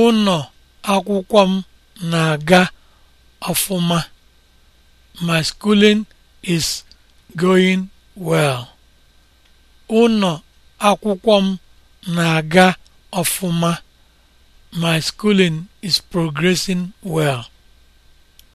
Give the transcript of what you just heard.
ụnọ akwụkwọ m na-aga ọfụma my schooling is going m na my schooling is progressing well